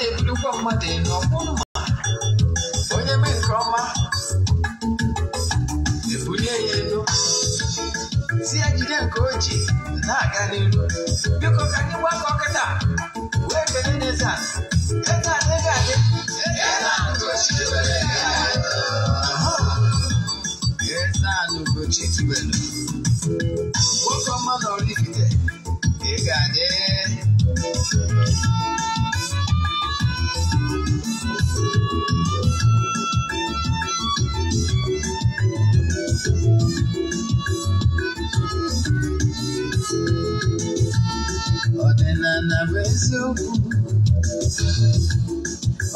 Thank you. i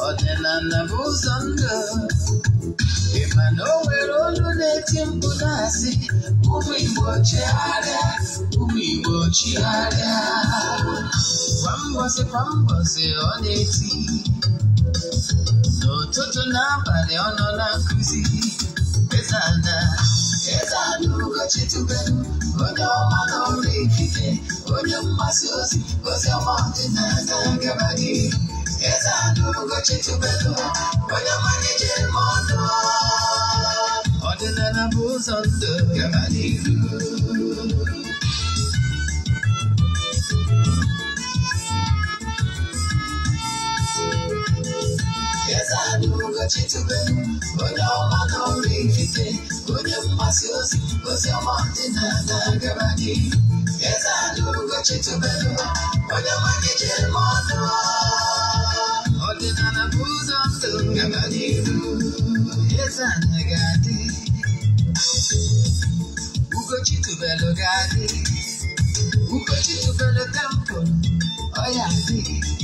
ọdịnanabuzo ndụ ịma na o nwere olu na-eti mkpu na-asị ụmụ Igbo chigharịa ụmụ Igbo chigharịa kwa mbọsị kwa mbọsị ọ na-eti n'ụtụtụ n'abalị ọ nọ na no na Chitube, onye ọma na ọrụ ekike, onye mgbasa ozi, ozi ọma ọdịnala gaba gị. Eze Anụgo Chitube, onye mmalite ime ọnụ. Ọdịnala bụ ụzọ ndụ gaba n'ihu. cetime Până-o corifite Punem masios Văzea martina da gabani Eza lugă cetime Până mai gece mono Ordina na buzo Gabani Eza negati Ugo citubelo gati Ugo citubelo campo Oia, sim.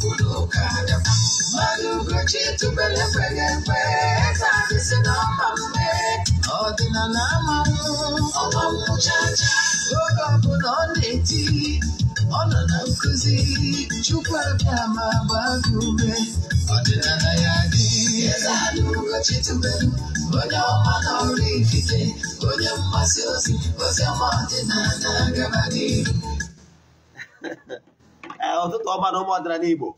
kutoka maruguchitu belepelepe kavisinamamme ọdịnanamamu ọmamụchacha oge ọbụla ọ na-eti ọ nọ na nkụzi chukwu abịa ma gbago ume ọdịnala ya dị ezeugochitube onye ọma na ọrụ ikike onye mgbasa ozi oziọma ọdịnala gaba n'ihu ọtụtụ ọma ụmụ ọdịnala Igbo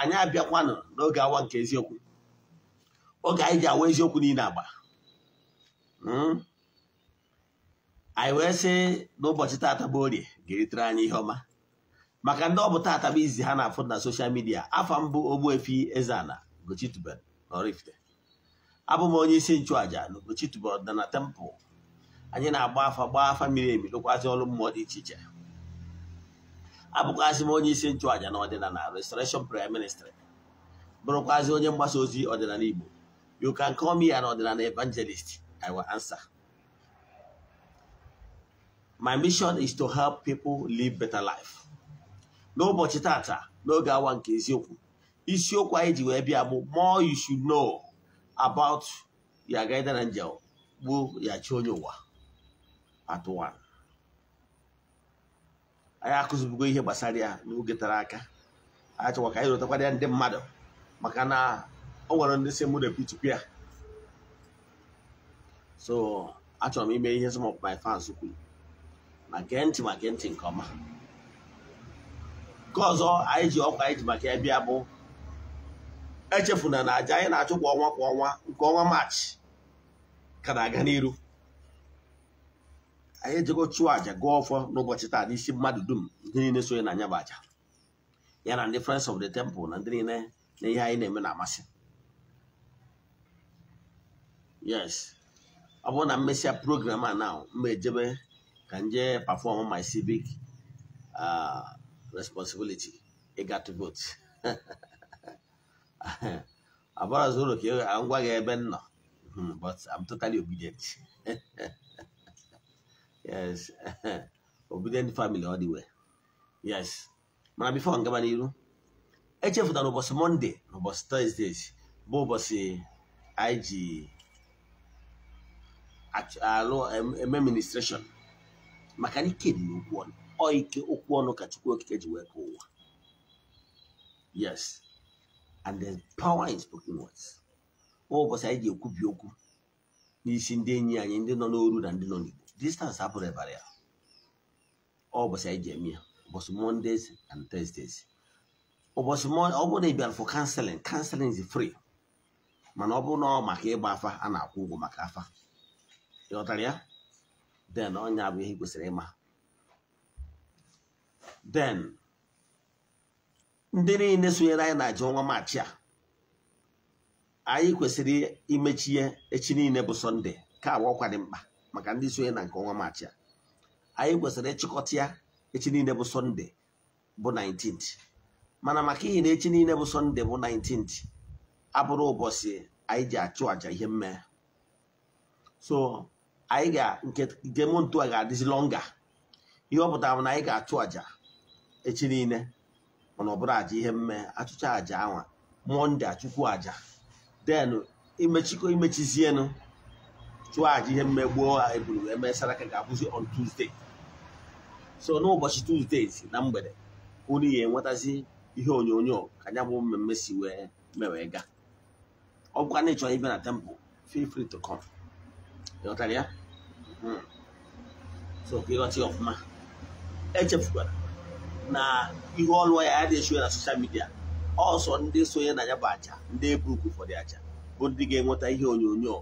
anyị abịakwanụ n'oge awa nke eziokwu oge anyị ji awa eziokwu niile agba hmm? anyị wee sị n'ụbọchị tata bụ orie ga-eritere anyị ihe ọma maka ndị ọ bụ tata bụ izi ha na-afụ na soshal midia afa mbụ Ogbuefi Eze-Ana Ugochitubelu Oraifite abụ m onye isi nchụaja na Ugochitubelu Ọdịnala Temple anyị na-agba afa gbaa afa miri emi lụkwazị ọrụ mmụọ dị iche iche abụkwazị m onye isi nchụàja na ọdịnala restoration prayer ministry bụrụkwazị onye mgbasa ozi ọdịnala Igbo you can call me an ọdịnala evangelist I will answer my mission is to help people live better life n'ụbọchị tata n'oge awa nke eziokwu isiokwu anyị ji wee bịa bụ more you should know about your guardian angel bụ ya chi onye ụwa part one anyị akụzibugo ihe gbasara ya n'oge tara aka achọkwa ka anyị rotakwara ya ndị mmadụ maka na ọ nwere ndị si mụ repeatụkwu ya so achọrọ m ime ihe some of my fans kwuru ma gee ntị ma gee ntị nke ọma nke ọzọ anyị ji ọkwa anyị ji maka ya bịa bụ echefuna na aja anyị na-achụ kwa ọnwa kwa ọnwa nke ọnwa maachị ka na-aga n'iru anyị ejego chụọ àjà gụọ ọfọ n'ụbọchị taa n'isi mmadụ dum ndị niile sonye na anya bụ ya na ndị of the temple na ndị niile na ihe anyị na-eme na-amasị yes ọ bụrụ na mmesia program a na mba ejebe ka nje perform my civic uh, responsibility ịga to vote abarazoro ka ngwa gị ebe m nọ hmm, but I'm totally obedient yes obedient family ọ dị wee yes mana bifo ngaba n'iru echefutara ụbọchị mọnde na ụbọchị tọzdee bụ ụbọchị anyị ji alụ eme ministreshọn maka na ike dị n'okwu ọnụ ọ ike okwu ọnụ ka chukwu okike ji wee ka ụwa yes and the power in spoken words ụbọchị anyị ji ekwubi okwu n'isi ndị enyi anyị ndị nọ n'oru na ndị nọ n'igbo distance hapụrụ ebara ya ọ ụbọchị anyị ji eme ya ụbọchị mondays and thursdays ụbọchị ọ bụrụ na ị bịara for kanselin counseling is free mana ọ bụrụ na ọ maka ịgba afa a na-akwụ ụgwọ maka afa ịghọtara ya then ọnya bụ ihe kwesịrị ịma den ndị niile sonyere anyị na-ajụ ọnwa maachị a anyị kwesịrị imechi imechie echi niile bụ sọnde ka agba ọkwa dị mkpa maka ndị sonye na nke ọnwa maachị a anyị kwesịrị ịchịkọta ya echi niile bụ sọnde bụ 19th mana maka ihi na echi niile bụ sọnde bụ 19th abụrụ ụbọchị anyị ji achụ àjà ihe mme so anyị ga nke mụ ntu a ga-adịzi lọnga ihe ọ pụtara na anyị ga-achụ àjà echi niile mana ọ bụrụ àjà ihe mme achụcha àjà anwa mọnde achụkwu àjà den imechikọ imechizienụ chụọ aja ihe mmegbuo eburu wee mee saraka ga-abụzi on Tuesday so n'ụbọchị Tuesday na mgbede unu ya enwetazi ihe onyonyo ka ya bụ mmemme si wee mewee gaa ọ bụkwa na ịchọrọ ibe na tempụ feel to come ịghọtara ya hmm. so ka ịghọta ya ọfụma echefukwara na ihe ọlụọ ya adịghị echiwe na soshal midia ọsọ ndị sonye na ya bụ aja ndị eburukwu ụfọdụ aja bụ ndị ga-enweta ihe onyonyo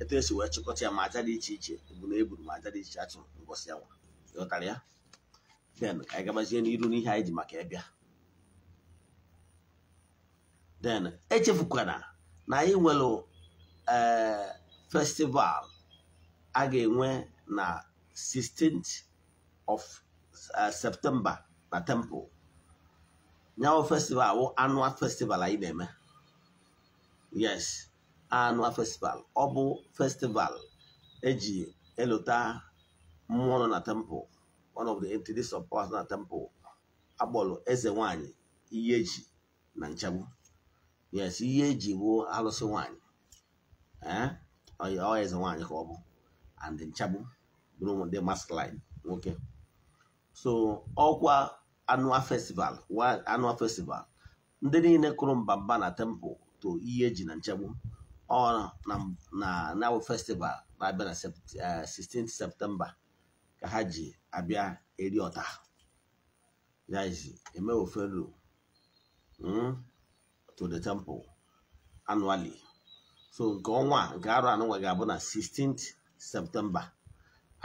etu esi wee chịkọta ya ma aja dị iche iche bụ na eburu ma aja dị iche achụ ngọsi ya ghọtara ya den ka anyị gabazie n'iru n'ihe anyị ji maka ịbịa den echefukwana na anyị nwere eh, festival a ga-enwe na 16th of eh, septemba na temple nyawo festival wụ annual festival anyị na-eme yes annual festival ọ bụ festival eji eluta mmụọ nọ na temple one of the entities of na temple agbọlụ eze nwanyị ihe eji na nchegbu yes ihe eji bụ alụsị nwanyị eh? ọ eze nwanyị ka ọ bụ and nchegbu bụrụ ndị line nwoke so ọkwa annual festival annual festival ndị niile kụrụ mbamba na temple to ihe eji na nchegbu ọ na na festival na-abịa na 16 eh, septemba ka ha ji abịa eri ọta yaji eme ofelu hmm, to the temple annually so nke ọnwa nke arụ anụnwa ga-abụ na 16 septemba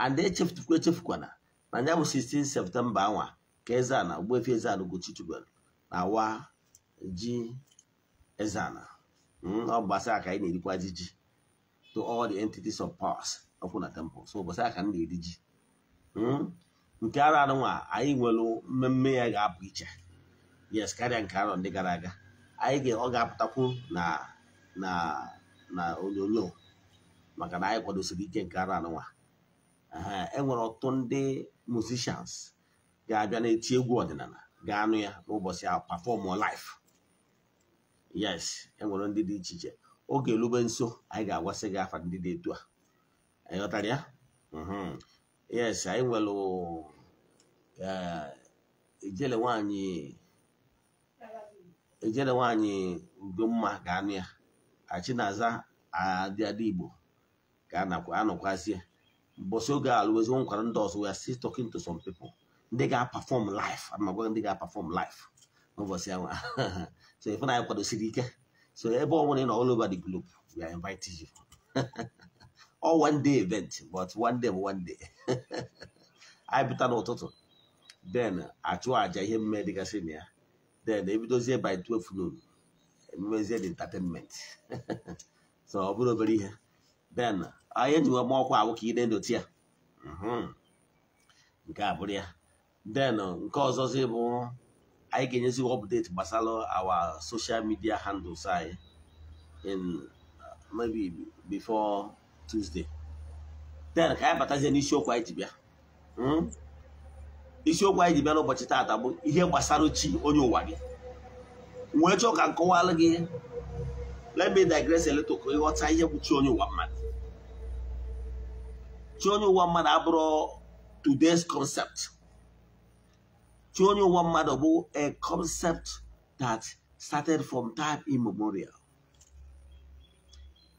and echefutukwa echefukwala na ya bụ 16 septemba anwa ka Eze-Ana Ogbuefi Eze-Ana Ugochi na awa ji eze Hmm? ọ ụbọchị a ka anyị na-erikwazi ji to all the entities of powers ọkwụ na temple so ụbọchị a ka m na-eri ji hmm? nke ara anụnwa anyị nwere mmemme ya ga-apụ iche yes karịa nke arọ ndị gara aga anyị ọ ga-apụtakwu na na na onyonyo maka na anyị kwadosiri ike nke ara anụnwa enwere ọtụtụ ndị musicians ga-abịa na-eti egwu ọdịnala ga-anụ ya n'ụbọchị ahụ perform live yes enwere ndị dị iche iche oge elube nso anyị ga-agwasị gị afa ndị dị etu a anyị ghọtara ya mhm. yes anyị nwere ejele eh, nwanyị ejele nwanyị ugomma ga-anụ ya achinaza adịadị igbo ka anọkwazie mbọsị oge alụwezi nkwara ndị ọzọ ya si talking to some people ndị ga-apafọm life ama ndị ga-apafọm life n'ụbọchị ahụ so Ifunanya kwadosiri ike so ebe ọ na ị nọ all over di globe we are inviting you all one day event but one day bụ one day anyị pụta n'ụtụtụ then achụ aja ihe mme dịgasị na ya then ebidozie by 12 noon emezie the entertainment so ọ bụrụ obere ihe then anyị enyiwe ma ọkwa awụ ka ị na-endote ya nke a bụrụ ya then nke ọzọzi bụ anyị ga-enyezi update gbasara our social media handles anyị in uh, maybe before Tuesday then ka anyị batazie n'isiokwu anyị ji bịa isiokwu anyị ji bịa n'ụbọchị taata bụ ihe gbasara chi onye ụwa gị wee chọọ ka nkọwalụ gị let me digress a little ịghọta ihe bụ chi onye ụwa mmadụ chi onye ụwa mmadụ abụrụ today's concept tí ó ní ụwa mmadụ a concept that started from time immemorial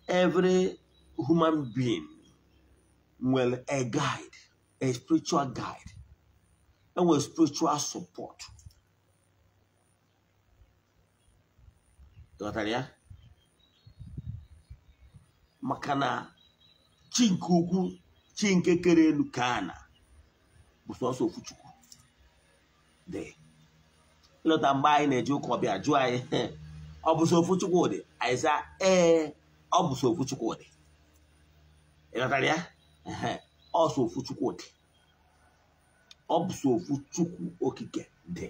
every human being will a guide a spiritual guide and will spiritual support ghọtara ya maka na chi nke ukwu chi nke dị ịlọta mgbe anyị na-eji ụka ọbịa jụọ anyị ọ bụ so ofu Chukwudị anyị ee ọ bụ so ofu Chukwudị ịghọtara ya ọ so Chukwudị ọ bụ so ofu Chukwu Okike dị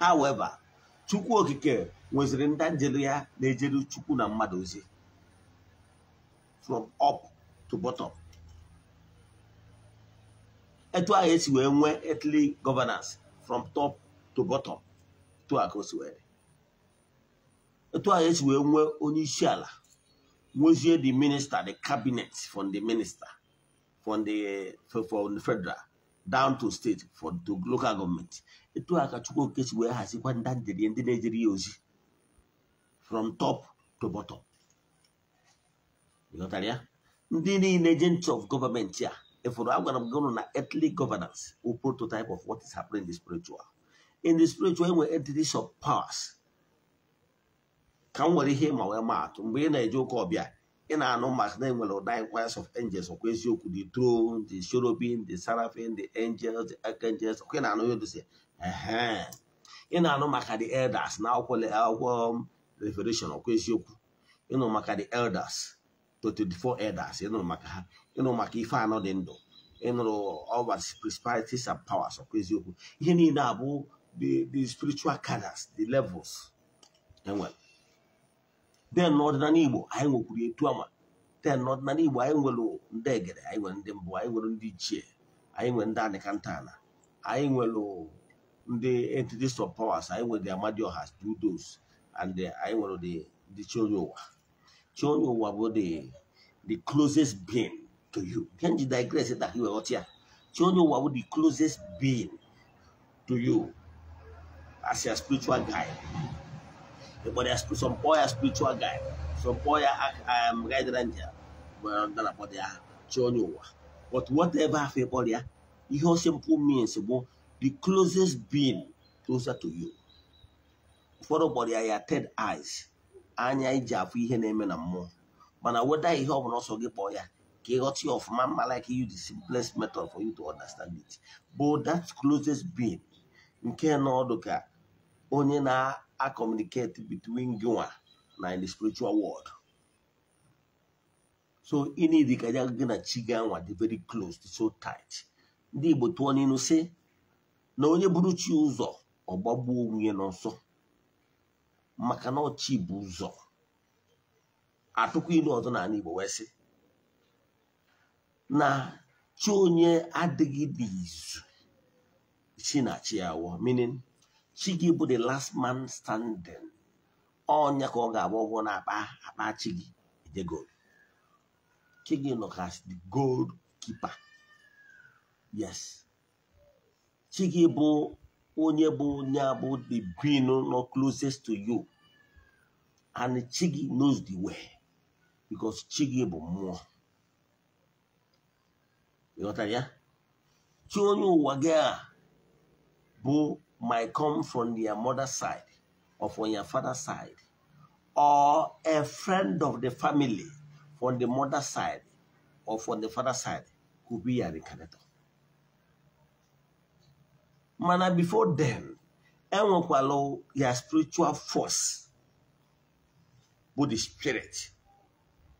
however Chukwu Okike nweziri ndị ya na-ejere Chukwu na mmadụ ozi from up to bottom etu ahụ esi wee nwee etli governance from top to bottom to ahụ si wee etu ahụ esi wee nwee onye isi ala nwezie the minister the cabinet from the minister from the eh, from the federal down to state for to local government etu ahụ ka Chukwuoke si wee hazikwa ndandịrị ndị ozi from top to bottom ịghọtara ya ndị niile agents of government a if we are going on an earthly governance, we prototype of what is happening in the spiritual. In the spiritual, when entities surpass, ka m were ihe ma wee maa atụ a joke of na-eje ụka ọbịa ị na-anụ maka na enwere ụda of angels ọkwa could the throne the cherubim the seraphim the angels the archangels ọkwa ị na-anụ ya dozi In na no maka the elders now call na akwụkwọ um, revelation ọkwa you know maka the elders to 24 elders ịnụrụ maka ha ịnụrụ maka ife anọ dị ndụ ịnụrụ ọwas principalities and powers ọkwa eziokwu ihe niile abụ the spiritual cadres the levels enwere then n'ọdịnala igbo anyị nwekwuru etu ama then n'ọdịnala igbo anyị nwere ndị egere anyị nwere ndị mbụ anyị nwere ndị ichie anyị nwere ndị anịkantana anyị nwere ndị entities of powers anyị nwere the amadioha dudos and anyị nwere the ndị children ụwa tí wọ́n wà bọ́dẹ̀ the closest being to you Can you digress that you ọtí à here? wọ́n ní wà bọ́dẹ̀ the closest being to you as your spiritual guide but there some poor spiritual guide some poor um, guide ranger Well under about their tí wọ́n ní wà but whatever afẹ́ bọ́ọ̀lì à ihe ọ simple means bụ the closest being closer to you ụfọdụ body ya ya third eyes anya iji afụ ihe na-eme na mmụọ mana weda ihe ọ bụla ọsọ gị kpọọ ya ka ị ghọta ọfụma mma like you the simplest method for you to understand it but that closest being nke na ọdụ ka onye na acomunicate between gị na the spiritual world so ị na-edi ka gị na chi ga nwa dị very close so tight ndị Igbo tụọ n'inu si na onye buru chi ụzọ ọ gbagbuo onwe ya maka na ọchị bụ ụzọ atụkwa ilu ọzọ n'ala Igbo wee sị na chi onye adịghị izu chi na chi awọ meaning chi gị bụ the last man standing ọnya ka ọ ga-agba ọgwụ na akpa akpa chi gị ede gold chi gị nọ ka the gold keeper yes chi gị bụ onye bụ onye bụ the being nọ closest to you and Chigi knows the way because Chigi gị bụ mmụọ ịghọtara ya chi onye ụwa gị a bụ my come from your mother side or from your father side or a friend of the family from the mother side or from the father side could be a reincarnator. mana before then enwekwala ya spiritual force bụ the spirit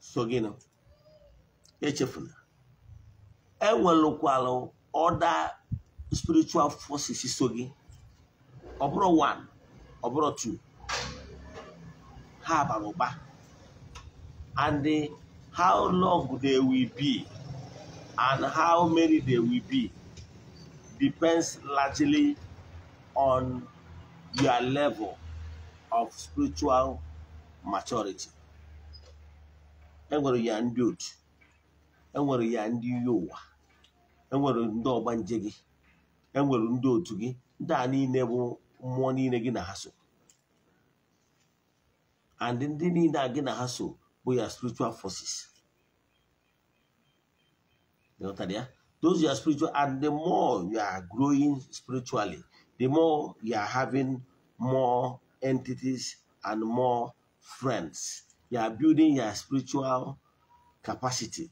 so gịnị echefuna enwelukwala other spiritual forces so gị ọ bụrụ one ọ bụrụ two ha bara ụba and how long they will be and how many they will be depends largely on your level of spiritual maturity. enwere ya ndị otu enwere ya ndị iyi ụwa enwere ndị ọgba nje gị enwere ndị otu gị ndị a niile bụ mmụọ niile gị na ha so and ndị niile a gị na ha so bụ ya spiritual forces. ya those you are spiritual, and the more you are growing spiritually, the more you are having more entities and more friends. You are building your spiritual capacity.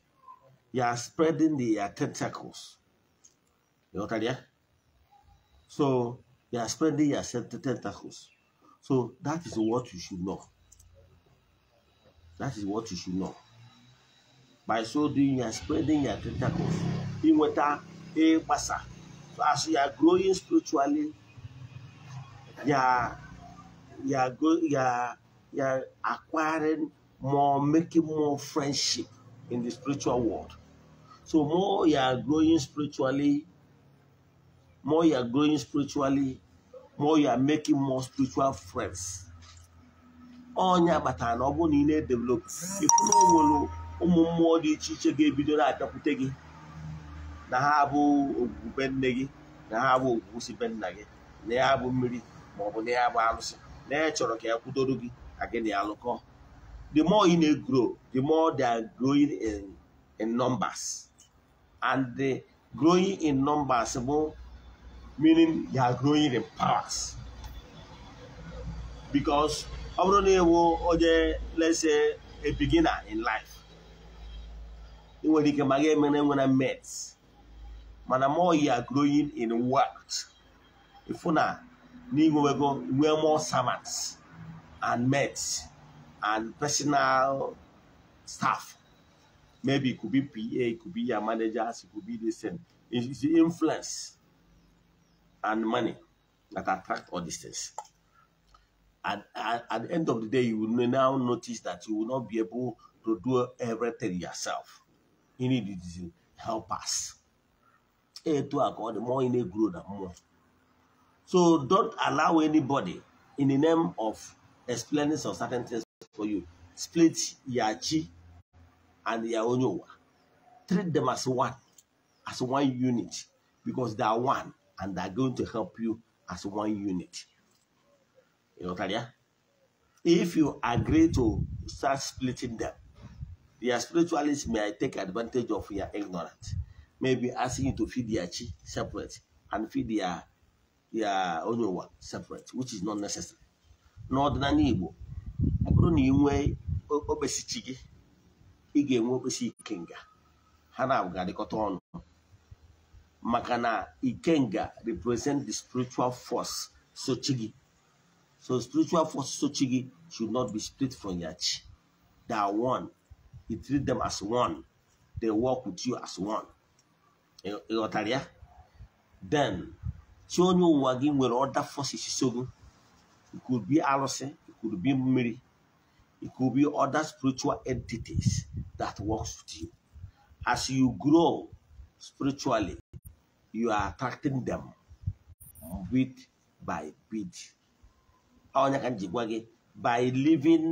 You are spreading the uh, tentacles. You understand? So you are spreading your tentacles. So that is what you should know. That is what you should know. By so doing, you are spreading your tentacles inweta ịgbasa as you are growing spiritually ya ya acquiring more making more friendship in the spiritual world so more you are growing spiritually more you are growing spiritually more you are making more spiritual friends ọnya kpatara na ọ bụrụ na ị na-edevelop ụmụ mmụọ dị iche iche ga-ebido na-abịakwute gị na ha abụ ogwugwu be nne gị na ha abụ ogwugwu si be nna gị na ya abụ mmiri ma ọ bụ na ya abụ alụsị na ya chọrọ ka ya kwudoro gị ka gị na ya lụkọ the more you na grow the more they are growing in, in numbers and the growing in numbers bụ meaning they are growing in powers because ọ bụrụ na ịwụ onye lese a beginner in life ị nwere ike ma ga emere nwere mates mana more you are growing in works if una go nwee more servants and mates and personal staff maybe it could be pa it could be your managers it could be this same it's the influence and money that attract all these things and at, at the end of the day you will now notice that you will not be able to do everything yourself you need to help us to a ka ọ more mmụọ ị na-egwuru na egwuru so don't allow anybody in the name of explaining some certain things for you split your chi and your treat them as one as one unit because they are one and they are going to help you as one unit you know ya if you agree to start splitting them your spiritualists may take advantage of your ignorance maybe asking you to feed their chi separate and feed their their one separate which is not necessary n'ọdịnala the ọ bụrụ na ị nwee okpesi chi gị ị ga-enwe okpesi ikenga Hana na-adịkọta ọnụ Makana ikenga represent the spiritual force so chi so spiritual force so chi should not be split from your chi they are one you treat them as one they work with you as one ịghọtara then si you ụwa gị with other forces it could be arụsị it could be Mary, it could be other spiritual entities that works with you as you grow spiritually you are attracting them bit by bit by living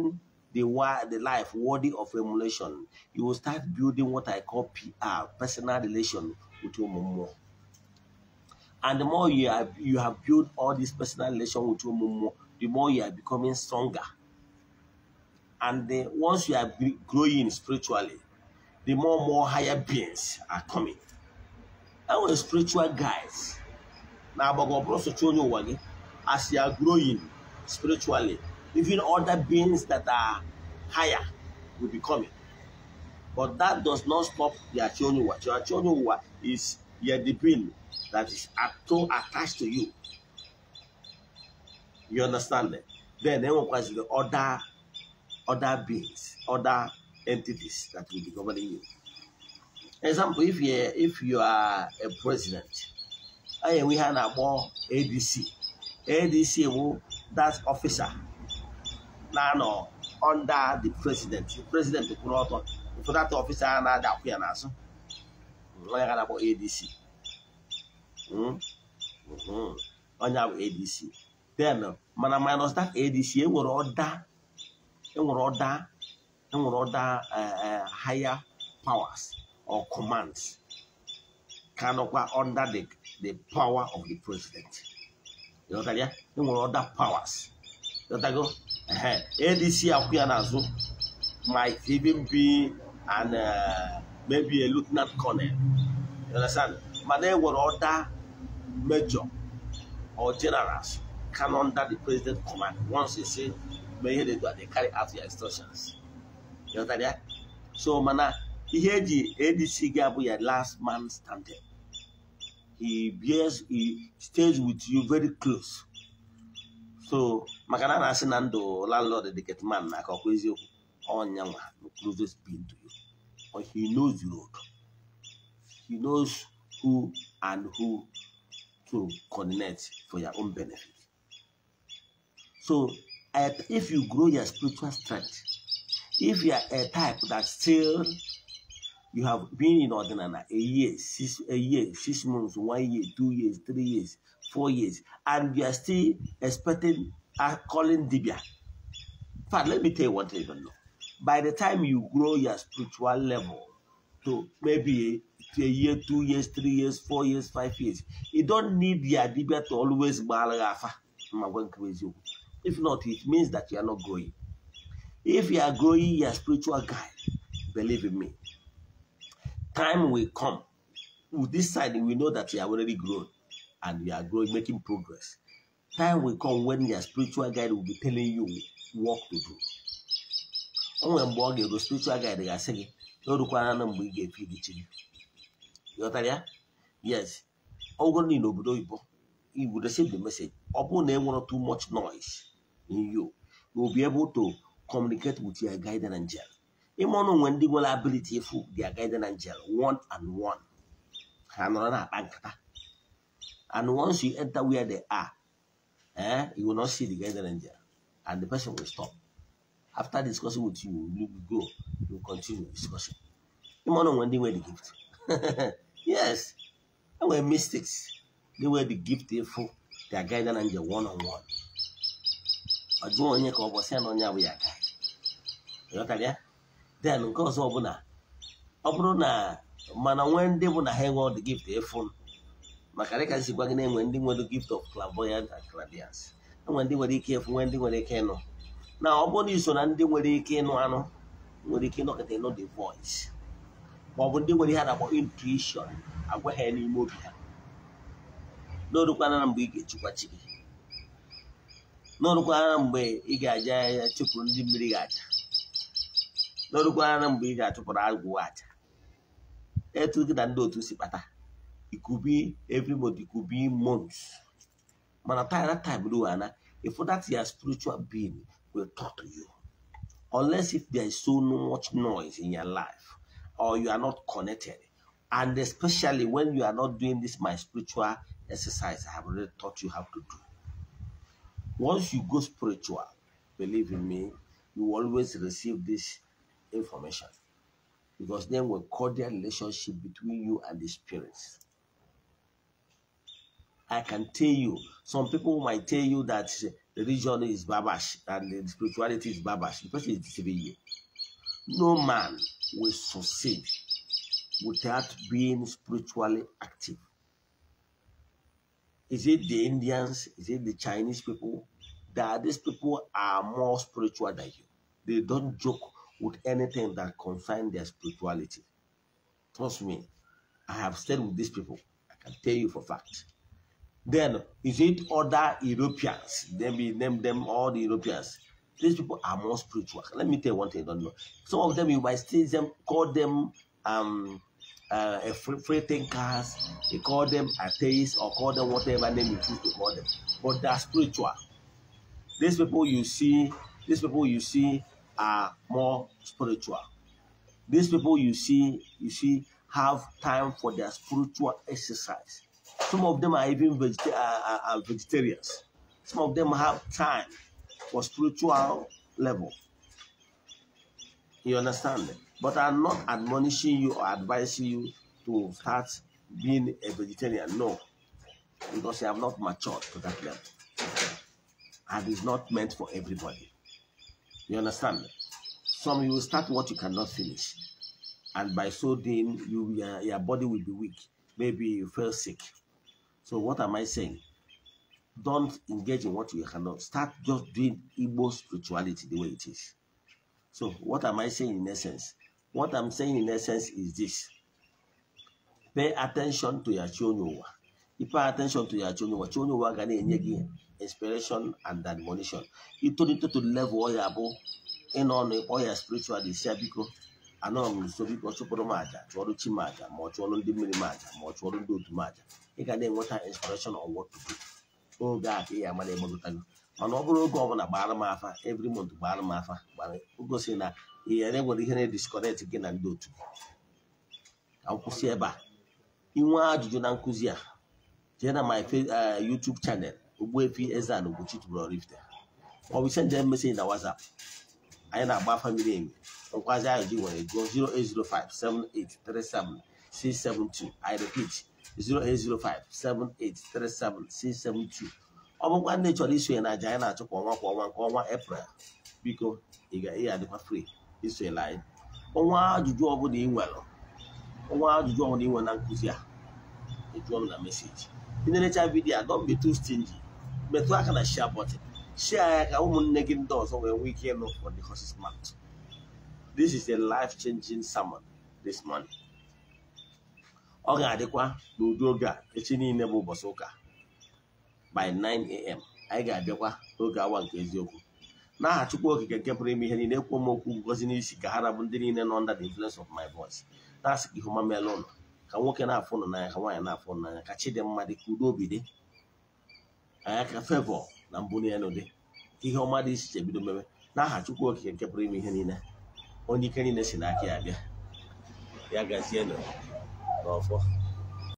the the life worthy of emulation you will start building what i call pr personal relation with Him more. And the more you have you have built all this personal relation with Him more, the more you are becoming stronger. And once you are growing spiritually, the more more higher beings are coming. And we're spiritual guys. Now, as you are growing spiritually, even other beings that are higher will be coming. But that does not stop the children. The children is your the that is attached to you. You understand that? Then they will the other other beings, other entities that will be governing you. Example, if you if you are a president, eh, we have a more ADC. ADC will that officer. Now no, under the president. The president will not ụfọdụ ọfịsa a na-ada akwụ ya n'azụ onye ga na-akpọ ADC onye bụ ADC then mana minus that ADC enwere ọda enwere ọda enwere ọda uh, uh, higher powers or commands ka nọkwa under the the power of the president ya enwere ọda powers ịghọtago ADC akwụ ya n'azụ might even and uh, maybe a lieutenant colonel. You understand? But then what other major or generals come under the president's command once they say, may they do they carry out their instructions. You understand that? So, mana, he ji ADC gị abụ last man standing. He bears, he stays with you very close. So, maka na a na-asị the ndụ landlord dịket man na aka ọkwa eziokwu ọnya being to you. Or he knows you. He knows who and who to connect for your own benefit. So if you grow your spiritual strength, if you are a type that still you have been in ordinary a year, six a year, six months, one year, two years, three years, four years, and you are still expecting a uh, calling Dibia. But let me tell you what I don't know by the time you grow your spiritual level to maybe a year, two years, three years, four years, five years, you don't need your debate to always crazy. If not, it means that you are not growing. If you are growing your spiritual guide, believe in me, time will come. With this side, we know that you are already grown and you are growing, making progress. Time will come when your spiritual guide will be telling you what to do o nwere mgbe ọ ga-ego spiritual guide ga-asị gị na o rukwara na mgbe ị ga-efe idichi gị ghọtara ya yes ọ bụrụ na n'obodo oyibo you will receive the message ọ bụrụ na enwere too much noise in you you will be able to communicate with your guide guidance angel ịma ọnụ nwe ndị nwere ability ịfụ their guidance angel one and one ha nọrọ na-akpa nkata and once you enter where they are eh, you will not see the guide guidance angel and the person will stop after discussing with you we will go you continue the discussion ịmana onwe ndị nwere the gift yes enwere mistakes. they nwere the gift efu their guide na nje one on one ọ jụọ onye ka ọ bụ ya na onye abụghị aka ịghọtara ya then nke ọzọ ọbụla ọ bụrụ na mana nwee ndị bụ na ha enwe the gift efu maka dịka nsikwa gị na-enwe ndị nwere gift of clairvoyance and clairvoyance enwe ndị nwere ike efu nwee ndị nwere ike ịnụ na ọ bụrụ iso na ndị nwere ike ịnụ anụ nwere ike ịnọkọta ịnụ the voice ma ọ bụ ndị nwere ihe a na-akpọ intuition agwa ha n'ime obi ha n'orukwana mgbe ị ga-echukwa chi gị n'orukwana mgbe ị ga-aja ya chụpụrụ ndị mmiri ga-aja n'orukwana mgbe ị ga-achụpụrụ agwụ aja etu gị na ndị otu si kpata ikubi every ikubi months mana time na time ruo ana ịfụ that ya spiritual being will talk to you. Unless if there is so much noise in your life or you are not connected. And especially when you are not doing this, my spiritual exercise, I have already taught you how to do. Once you go spiritual, believe in me, you always receive this information because then we cordial relationship between you and the spirits. I can tell you, some people might tell you that religion is babash and the spirituality is babash, the person is deceiving you. No man will succeed without being spiritually active. Is it the Indians? Is it the Chinese people? That these people are more spiritual than you. They don't joke with anything that concerns their spirituality. Trust me, I have stayed with these people. I can tell you for fact. Then is it other Europeans? Then we name them all the Europeans. These people are more spiritual. Let me tell you one thing I don't know. Some of them you might see them call them um uh, a free thinkers, you call them atheists or call them whatever name you choose to call them. But they are spiritual. These people you see, these people you see are more spiritual. These people you see, you see, have time for their spiritual exercise. Some of them are even uh, uh, uh, vegetarians. Some of them have time for spiritual level. You understand? But I'm not admonishing you or advising you to start being a vegetarian. No. Because you have not matured to that level. And it's not meant for everybody. You understand? Some you will start what you cannot finish. And by so doing, you, your, your body will be weak. Maybe you feel sick so what am I saying? Don't engage in what you cannot. Start just doing Igbo spirituality the way it is. So what am I saying in essence? What I'm saying in essence is this. Pay attention to your chonyowa. You pay attention to your chonyowa. Chonyowa gana enye gi inspiration and admonition. You turn it to the level are abo. In on your spiritual disciple. anọ m nso biko chụpụrụ m aja chụọrụ chi m aja ma ọ chụọrụ ndị mmiri m aja ma ọ chụọrụ ndị otu m aja ị ga na-enweta inspiration of what to do oge a ka ị amara egbegọtago mana ọ bụrụ oge ọbụla gbara m afa every month gbara m afa gosi na ihe na-enwere ihe na-edisconnect gị na ndị otu ka m kwụsị ebe a inwe ajụjụ na nkụzi a jee na my eh, YouTube channel Ogbuefi eze a Ugochi tubelu Oraifite ọ bụ send na WhatsApp anyị na-agba famili emi nkwazi anyị ji nwere gụọ 08057837672 i repeat 08057837672 ọ bụkwa ndị chọrọ isonye na aja anyị na-achụ kwa ọnwa kwa ọnwa nke ọnwa eprel biko ị ga-adịkwa free isonyela anyị ọnwa ajụjụ ọbụla ị nwere ọnwa ajụjụ ọbụla ị nwere na nkụzi a ejụọ m na meseji ị na vidio vidiyo a don't be too metụ aka na share button shia ka ụmụnne gị ndị ọzọ nwee nwee ike ịnụ for the horse's mouth this is a life changing sermon this morning ọ ga-adịkwa n'ụdị oge a echi niile bụ ụbọchị ụka by 9am anyị ga-abịakwa n'oge awa nke eziokwu n'aha Chukwu Okike nke pụrụ ime ihe niile ekwuo m okwu ngozi n'isi ka ha rabụ ndị niile nọ under the influence of my voice na-asị ka ihu ọma ụlọ ka nwoke na-afụ ụnụ n'anya ka nwaanyị na-afụ ụnụ n'anya ka chi dị mma ka udo obi dị anya ka favor na na elu dị ka ihe ọma dị iche iche bido mebe n'aha Chukwu Okike nke pụrụ ime ihe niile onye ike niile si n'aka ya bịa ya gazienụ n'ọfọ